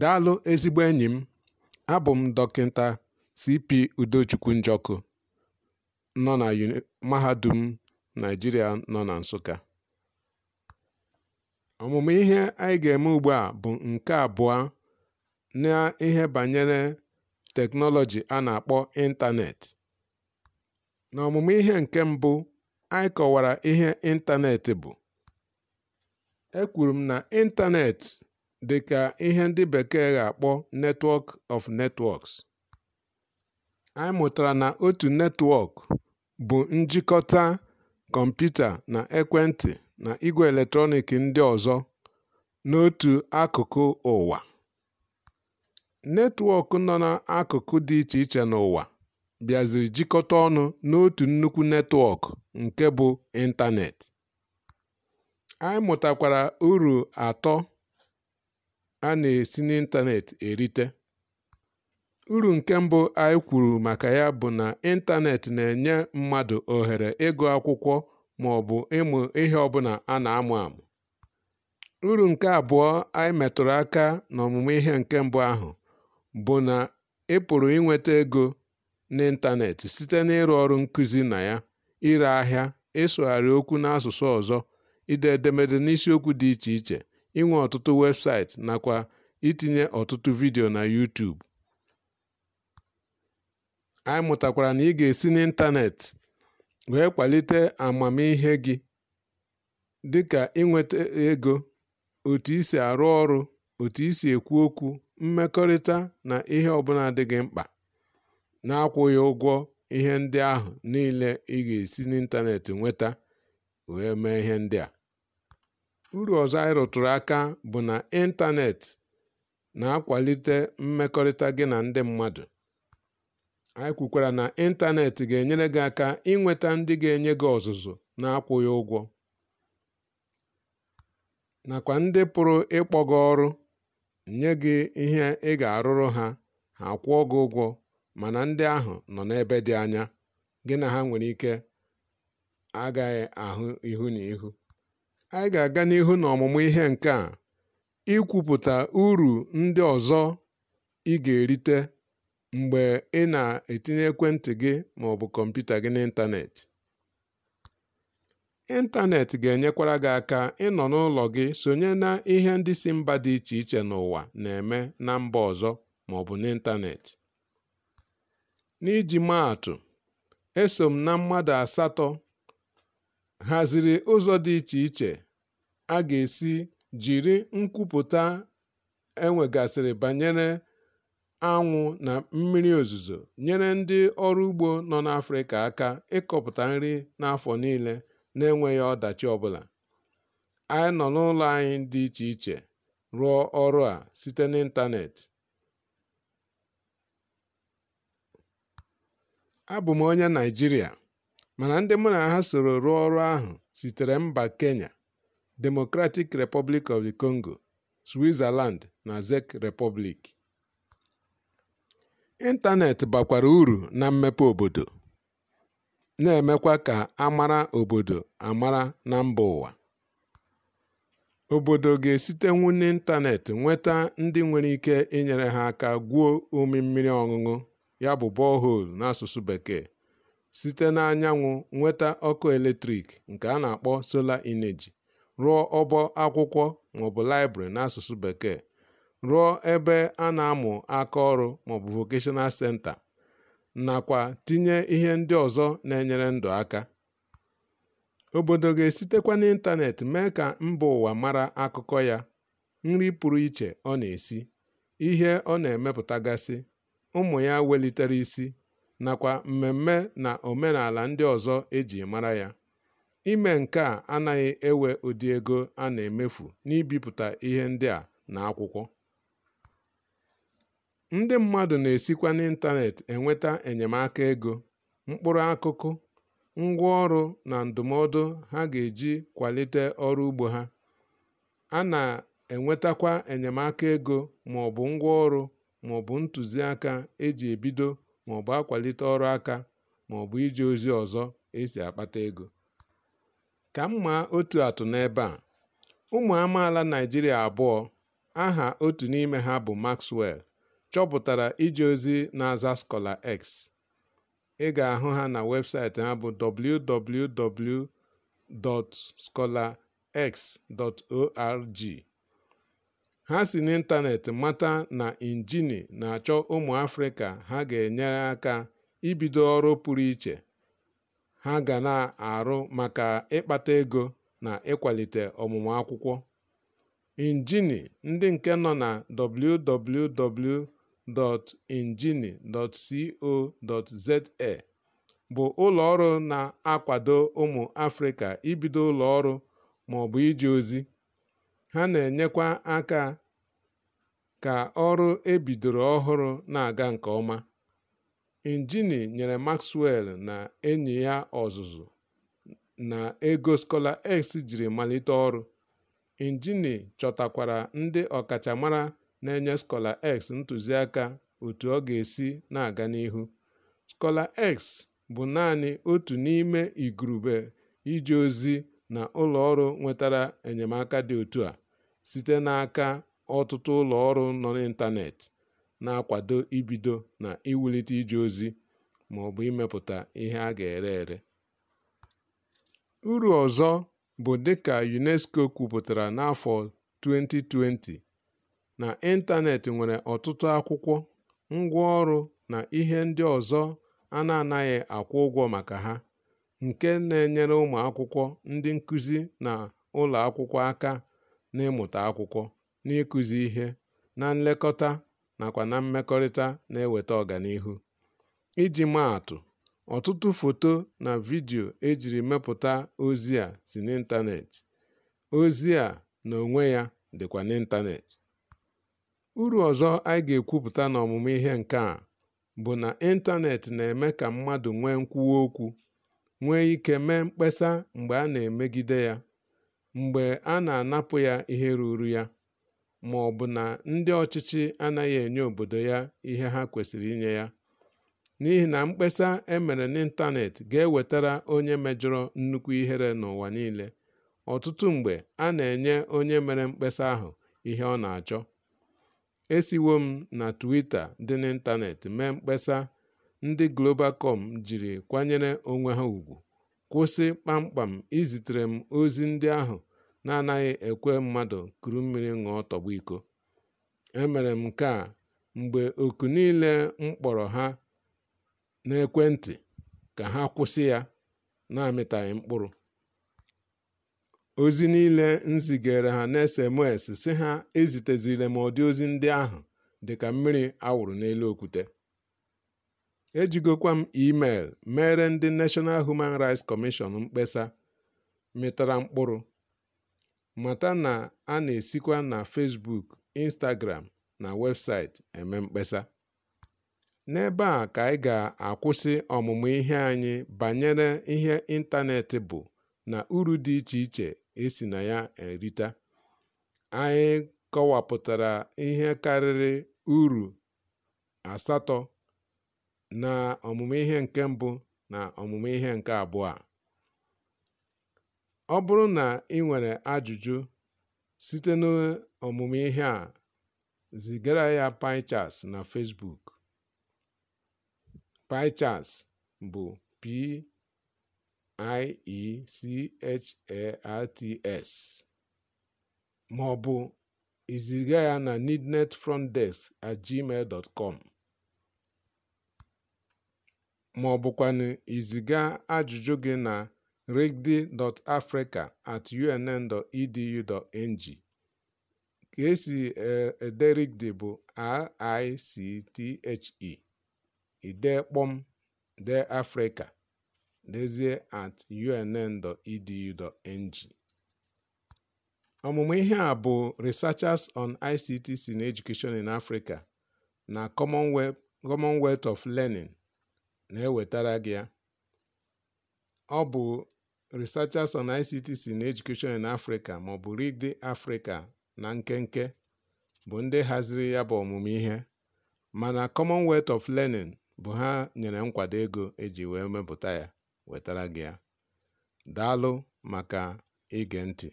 Daalụ ezigbo enyi m, abụ m Dọkịta C.P. Udochukwu Njọkụ nọ na Mahadum Naịjirịa nọ na Nsụka. Ọmụmụ ihe anyị ga-eme ugbu a bụ nke abụọ na ihe banyere teknọlọji a na-akpọ ịntaneetị. N'ọmụmụ ihe nke mbụ, anyị kọwara ihe ịntaneetị bụ. Ekwuru m na ịntaneetị dị ka ihe ndị bekee ga-akpọ Netwọk of Netwọks, Anyị mụtara na otu netwọk bụ njikọta kọmputa na ekwentị na igwe eletrọnịkị ndị ọzọ n'otu akụkụ ụwa. Netwọk nọ n'akụkụ dị iche iche n'ụwa bịaziri jikọta ọnụ n'otu nnukwu netwọk nke bụ ịntanetị. Anyị mụtakwara uru atọ a na-esi n'ịntanet erite. Uru nke mbụ anyị kwuru maka ya bụ na ịntanet na-enye mmadụ ohere ịgụ akwụkwọ bụ ịmụ ihe ọbụla a na-amụ amụ. Uru nke abụọ anyị metụrụ aka n'ọmụmụ ihe nke mbụ ahụ bụ na ị pụrụ inweta ego n'ịntanet site n'ịrụ ọrụ nkuzi na ya, ire ahịa, ịsụgharị okwu n'asụsụ ọzọ, ide edemede n'isiokwu dị iche iche, inwe ọtụtụ webụsaịtị nakwa itinye ọtụtụ vidiyo na YouTube. Anyị mụtakwara na ị ga-esi n'ịntaneetị wee kwalite amamihe gị dịka inweta ego, otu isi arụ ọrụ, otu isi ekwu okwu, mmekọrịta na ihe ọbụla dị gị mkpa, na-akwụghị ụgwọ ihe ndị ahụ niile ị ga-esi n'ịntanetị nweta wee mee ihe ndị a. Uru ọzọ anyị rụtụrụ aka bụ na ịntanetị na-akwalite mmekọrịta gị na ndị mmadụ. Anyị kwukwara na ịntanetị ga-enyere gị aka inweta ndị ga-enye gị ọzụzụ na-akwụghị ụgwọ, nakwa ndị pụrụ ịkpọ gị ọrụ, nye gị ihe ị ga-arụrụ ha, ha kwụọ gị ụgwọ, mana ndị ahụ nọ n'ebe dị anya, gị na ha nwere ike agaghị ahụ ihu na ihu. Anyị ga-aga n'ihu na ọmụmụ ihe nke a, ikwupụta uru ndị ọzọ ị ga-erite mgbe ị na-etinye ekwentị gị ma ọ bụ kọmputa gị n'ịntanetị. Ịntanetị ga-enyekwara gị aka ịnọ n'ụlọ gị sonye na ihe ndị si mba dị iche iche n'ụwa na-eme na mba ọzọ ma maọbụ n'ịntanetị. N'iji maa atụ, eso m na mmadụ asatọ haziri ụzọ dị iche iche a ga-esi jiri nkwupụta enwegasịrị banyere anwụ na mmiri ozuzo nyere ndị ọrụ ugbo nọ n'Afrịka aka ịkọpụta nri n'afọ niile na-enweghị ọdachi ọbụla. Anyị nọ n'ụlọ anyị dị iche iche rụọ ọrụ a site n'ịntanetị. Abụ m onye naijiria Mana ndị mụ na ha soro rụọ ọrụ ahụ sitere mba Kenya, Democratic Republic of the Congo, Switzerland na Czech Republic. ịntanetị bakwara uru na mmepe obodo, na-emekwa ka a mara obodo amara na mba ụwa. Obodo ga-esitenwu esite ịntanetị nweta ndị nwere ike inyere ha aka gwuo umi mmiri ọṅụṅụ ya bụ borehole n'asụsụ Bekee site n'anyanwụ nweta ọkụ eletrik nke a na-akpọ sola ineji, rụọ ọbọ akwụkwọ maọbụ na n'asụsụ Bekee, rụọ ebe a na-amụ aka ọrụ maọbụ Vocational Center, nakwa tinye ihe ndị ọzọ na-enyere ndụ aka. Obodo ga-esitekwa n'ịntanetị mee ka mba ụwa mara akụkọ ya, nri pụrụ iche ọ na-esi, ihe ọ na-emepụtagasị, ụmụ ya welitere isi, nakwa mmemme na omenala ndị ọzọ eji mara ya. Ime nke a anaghị ewe ụdị ego a na-emefu n'ibipụta ihe ndị a na akwụkwọ. Ndị mmadụ na-esikwa n'ịntanetị enweta enyemaka ego, mkpụrụ akụkụ, ngwaọrụ na ndụmọdụ ha ga-eji kwalite ọrụ ugbo ha. A na-enwetakwa enyemaka ego maọbụ ngwaọrụ maọbụ ntụziaka e ebido maọbụ akwalite ọrụ aka maọbụ iji ozi ọzọ esi akpata ego. Ka m otu atụ n'ebe a, ụmụ amaala Naịjirịa abụọ, aha otu n'ime ha bụ Maxwell, chọpụtara iji ozi na-aza Scholar X. Ị ga-ahụ ha na webụsaịtị ha bụ www.scholarx.org. Ha si n'ịntanetị mata na Injini na-achọ ụmụ Afrịka ha ga-enyere aka ibido ọrụ pụrụ iche ha ga na-arụ maka ịkpata ego na ịkwalite ọmụmụ akwụkwọ. Injini ndị nke nọ na www.injini.co.za bụ ụlọọrụ na-akwado ụmụ Afrịka ibido ụlọọrụ maọbụ iji ozi. Ha na-enyekwa aka ka ọrụ ebidoro ọhụrụ na-aga nke ọma. injini nyere Maxwell na enyi ya ọzụzụ na ego skọla X jiri malite ọrụ. injini chọtakwara ndị ọkachamara na-enye skọla X ntụziaka otu ọ ga-esi na-aga n'ihu. skọla X bụ naanị otu n'ime igurube iji ozi na ụlọ ọrụ nwetara enyemaka dị otu a. site n'aka ọtụtụ ụlọ ọrụ nọ n'ịntanetị na-akwado ibido na iwulite ije ozi ma ọ bụ imepụta ihe a ga-ere ere. Uru ọzọ bụ dịka UNESCO kwupụtara n'afọ 2020, na ịntanetị nwere ọtụtụ akwụkwọ, ngwaọrụ na ihe ndị ọzọ a na-anaghị akwụ ụgwọ maka ha, nke na-enyere ụmụ akwụkwọ ndị nkụzi na ụlọ akwụkwọ aka na n'ịmụta akwụkwọ, n'ịkụzi ihe, na nlekọta nakwa na mmekọrịta na-eweta ọganihu. Iji maa atụ, ọtụtụ foto na vidio ejiri mepụta ozi a si n'ịntanetị Ozi a na onwe ya dịkwa n'ịntaneetị. Uru ọzọ anyị ga-ekwupụta n'ọmụmụ ihe nke a bụ na ịntanetị na-eme ka mmadụ nwee nkwuwa okwu, nwee ike mee mkpesa mgbe a na-emegide ya. mgbe a na-anapụ ya ihe ruru ya, ma ọ bụ na ndị ọchịchị anaghị enye obodo ya ihe ha kwesịrị inye ya, n'ihi na mkpesa emere mere n'ịntanetị ga-ewetara onye mejọrọ nnukwu ihere n'ụwa niile. Ọtụtụ mgbe, a na-enye onye mere mkpesa ahụ ihe ọ na-achọ. Esiwo m na twita dị n'ịntanetị mee mkpesa ndị globalcom jiri kwanyere onwe ha ùgwù. kwụsị kpamkpam izitere m ozi ndị ahụ na-anaghị ekwe mmadụ kuru mmiri ṅụọ tọgbọ iko. Emere m nke mgbe oku niile m kpọrọ ha n'ekwentị ka ha kwụsị ya na-amịtaghị mkpụrụ. Ozi niile nzigere ha n'SMS si ha ezitezile m ụdị ozi ndị ahụ dị ka mmiri a n'elu okwute. Ejigokwa m email mere ndị national Human rights commission mkpesa mịtara mkpụrụ. Mata na a na-esikwa na Facebook, Instagram na websaịtị eme mkpesa. N'ebe a ka anyị ga-akwụsị ọmụmụ ihe anyị banyere ihe ịntanetị bụ na uru dị iche iche esi na ya erita. Anyị kọwapụtara ihe karịrị uru asatọ na ọmụmụ ihe nke mbụ na ọmụmụ ihe nke abụọ a. Ọ bụrụ na ị nwere ajụjụ site n'ọmụmụ ihe a, zigara ya pichas na Facebook. Pichas bụ P-I-E-C-H-A-R-T-S ma iziga ya na ma ọ bụkwa i ziga ajụjụ gị na rigby.africa@unn.edu.ng. Ka esi e, ede Rigby bụ R.I.C.T.H.E, idee kpọm dee Afrịka, dezie at e Ọmụmụ ihe a bụ Researchers on ICT na Education in Africa na Commonwealth of Learning. na-ewetara gị ya. Ọ bụ Researchers on ICT na Education in Africa maọbụ Read Africa na nkenke bụ ndị haziri ya bụ ọmụmụ ihe, mana Commonwealth of Learning bụ ha nyere nkwado ego eji wee mepụta ya wetara gị ya. Daalụ maka ige ntị!